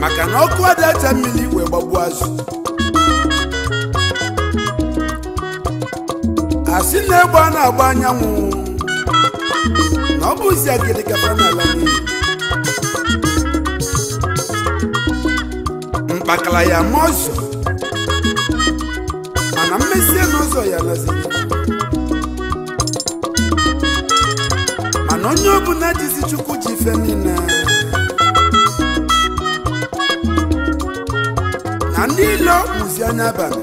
maka na ọkụ adacha mmiri wee gbagbuo azụ asị na-egbe a na-agba anyanwụ na ọ bụzi agịrị gaba n'ala n'iyi mkpakala ya ma ọzọ mana mmesie n'ụzọ ya laziri onye ọbụla dizi chukwu ji ife niile na ndị ilo kpụzi anya abalị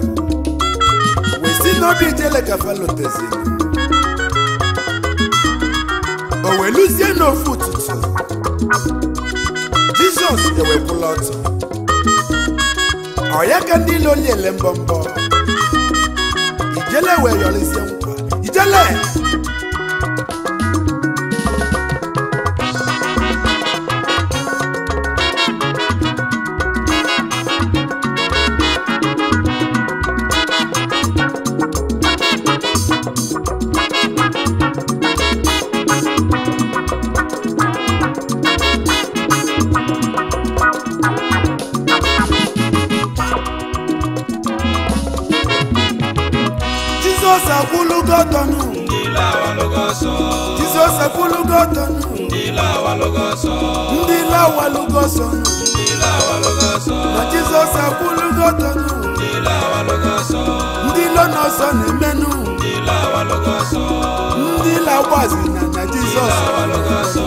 wee si n'obi ijele gafaloteziri o wee luzie n'ofu ụtụtụ jizọs ewepụla ọtọ ọ ya ka ndị ilo liele mbọmbọ ijele wee yọrịzie nkwa ijele efulugotonu. ndị lawa lugoso. ndị lawa lugoso. ndị lawa lugoso. na jizọs efulugotonu. ndị lawa lugoso. ndị lọnọsọ na-emenụ. ndị lawa lugoso. ndị lawazi na na jizọs. ndị lawa lugoso.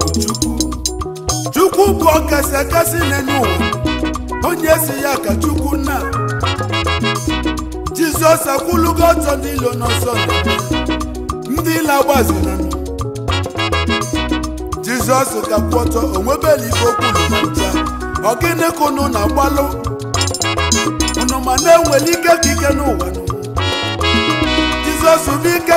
bụ chukwu chukwu bụ ọkasị akasị n'elu onye si ya ka chukwu nna jizọs akwụlugo ọtọ n'ilo n'ọsọ ndị na jizọs ka kwụ ọtọ onwebela ife okwulu na ncha ọgịnị na-agbalụ unu ma na-enwere ike ka n'ụwa jizọs bụ ike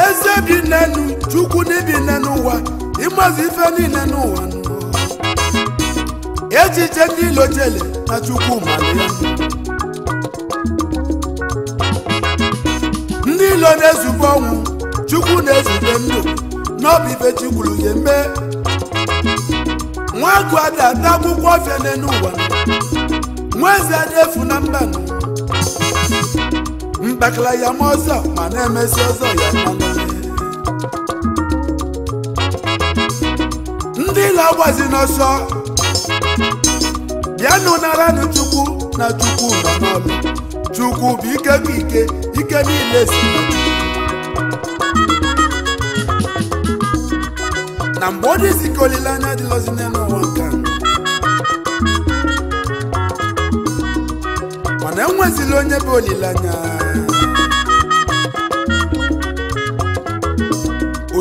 eze bi na chukwu n'ibi n'ụwa ịmazi ife niile n'ụwa echiche ndị ilo jele na chukwu mara ya ndị ilo na-ezube ọnwụ chukwu na-ezube ndụ n'ọbụ ife chikwuru ya mee nwa agụ ada ata akwụkwọ ọfịa n'elu ụwa nwa eze efu na mba mbakala ya ma ọzọ ma na-emesi ọzọ ya mmanụ ndị na-agbazi n'ọsọ bịanụ naranụ chukwu na chukwu nọ n'ọlụ chukwu bụ ike bụ ike ike niile si na mgbe ọ dịzi ka olileanya dịlọzi n'ụwa nke mana enwezila onye bụ olileanya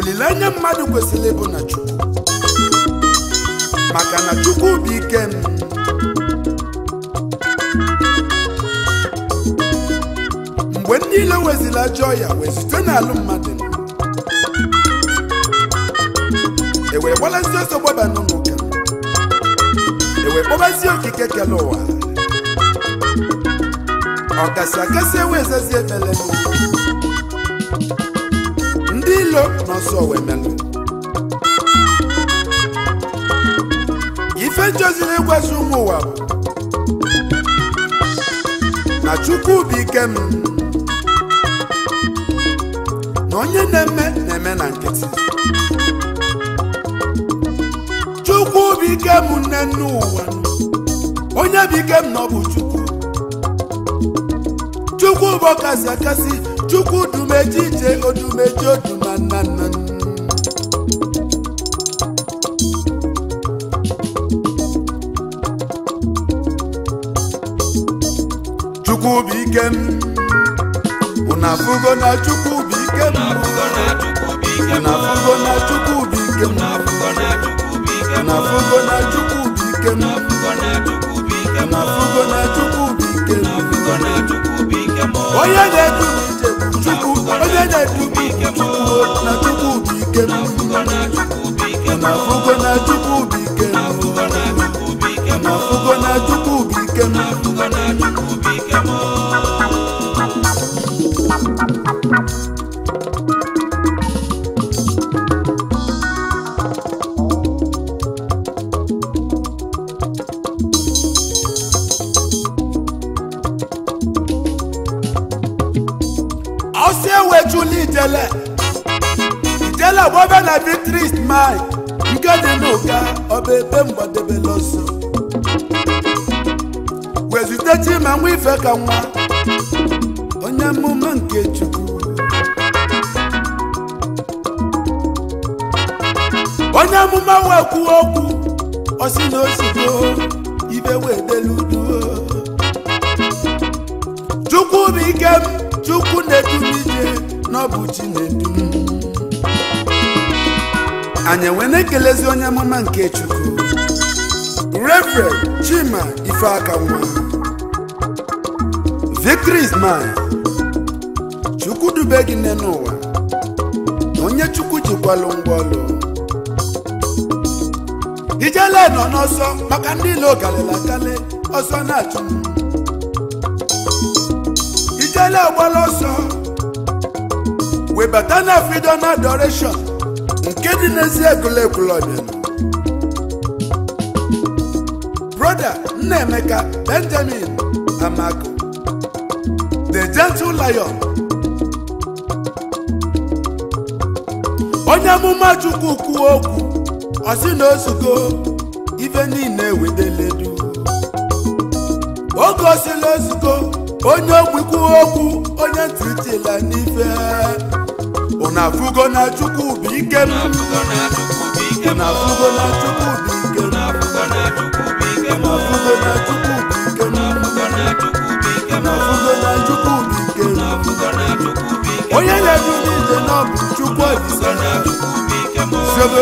olileanya mmadụ kwesịrị ịbụ na chukwu maka na chukwu bụ ike m mgbe m niile wezili ajọ ọya wee zute n'alụ mmadụ e wee gbalasi ọsọ gbaba n'ụlọ e wee kpọbazie okike kele ụwa ọkasị akasị ewee ezazi efele ilo n'ọsọ wemenụ ife njoziri ịgwazi ụmụ ụwa na chukwu bụ m na onye na-eme na-eme na nkịtị chukwu bụ m nne nne ụwa onye bụ ike m na ọ bụ chukwu chukwu bụ ọkasi akasi chukwu dumeji ije odumeji odu chukwu bụ ike m unu na chukwu na chukwu bụ ike m na chukwu na onye na-edu chukwu onye na-edu chukwu na chukwu ike afụgo na chukwu bụ ike afụgo na chukwu ike osie wejula ijele ijele gbobe na vitris mi nke dị n'ụka ọba ebe mgbadebe ọsọ wezute ma nwa ife ka nwa onye mmume nke chukwu onye mmume nwe kwuo okwu osi na gboo. Chinedu anyị enwe na-ekelezi onye amụma nke Chukwu Reverend Chima Ifeakanwa Victory is Chukwu dube gị nne n'ụwa onye Chukwu jikwalụ ngwaọlụ ijele nọ n'ọsọ maka ndị ilo galela ọsọ na-achụ ijele agbala ọsọ webata na freedom adoration nke dị n'ezi egwuregwu ọdịnala broda nnaemeka benjamin amako the gentle lion onye amụma chukwu kwuo okwu ọsị na ozugbo ife niile wedeledu oge osila ozugbo onye ogbi kwuo okwu onye ntị la n'ife unu afụgo na chukwu bụ ike m unu fugo na chukwu bụ ike m unu afụgo na chukwu bụ ike m unu fugo na chukwu bụ ike m onye na-edu n'ije na ọ bụ chukwu ọdịsa sebe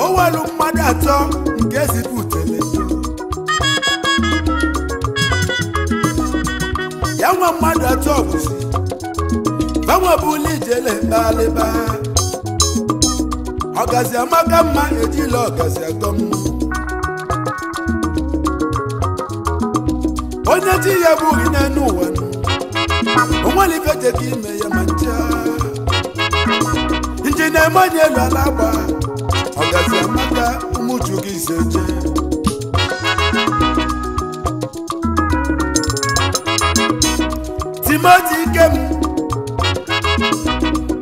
o welu mmadụ atọ nke zipụtele e ya nwa mmadụ atọ bụzi banwebụla ijele mkpalịba ọgazi amaka mma ejila ọgazi atọ onye chi ya bụghị n'enu ụwa onwere ife jeka ime ya ma ncha nje na onye elu ala agba ọ gazi amata ise gị izeje timoti ikem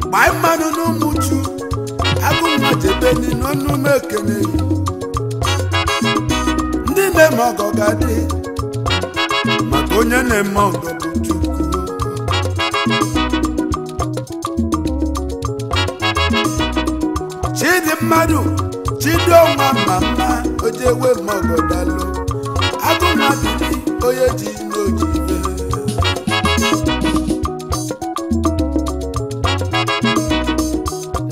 gbaa mmanụ n'ụmụju abụ mmajebeni n'ọnụ m ndị na-eme ọgọ ga-adị maka onye na-eme ọgọ bụ mmadụ ma mma ojewe maọbọdalụ agụmabili onye ji n'ojibe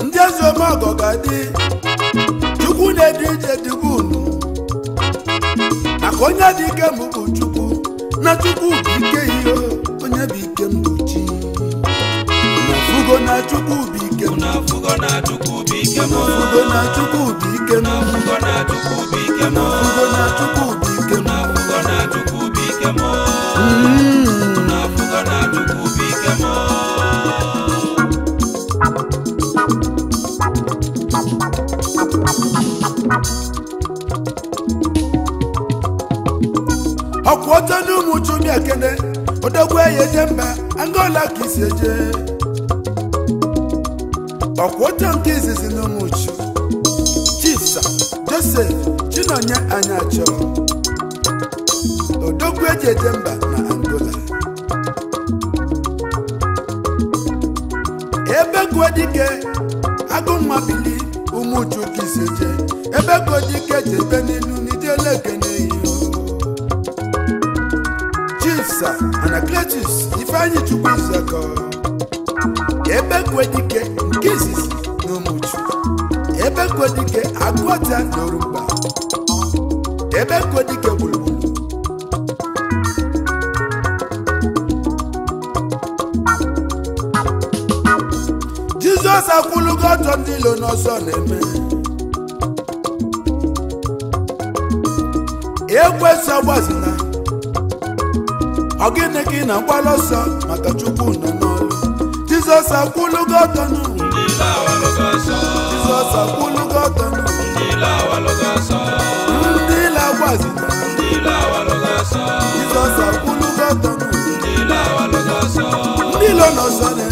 ndị eze omọgọ ga-adị chukwu na-ede ije dịbu unu maka onye dị ike mbụ bụ chukwu na chukwu bụ ike ihe onye bụ ike m bụ na chukwu bụ m ofugo na Chukwudi ike na ike na ike na ike na ike ọtọ n'ụmụ chumi ekene odogwu eyi eje mba angola ka isi eje ọkwa oche nke izizi uchu chisa josef chinonye anyacho odogwu eji eje mba na angola ebe agụ agụnwa bili ụmụju kiseje ebe godike jebe n'ilu n'ijelekene chisa anacletus ifeanyi chukwu zeko ebe kwedike nke izizi na umuchu ebe kwedike agụọta na orumba ebe kwedike gburugburu jizọs akwụlugo ọtọ ndị ilo n'ọsọ na-eme ekwesị ọgbazina ọ gịnị gị na-agbala ọsọ maka chukwu na n'ọrụ Jesus akulugo tanu. Ndila wa logo sọ. Jesus akulugo tanu. Ndila wa logo sọ. Ndila wa zina. Ndila wa logo sọ. Jesus akulugo tanu. Ndila wa logo sọ. Ndilo nọ sọ dẹ.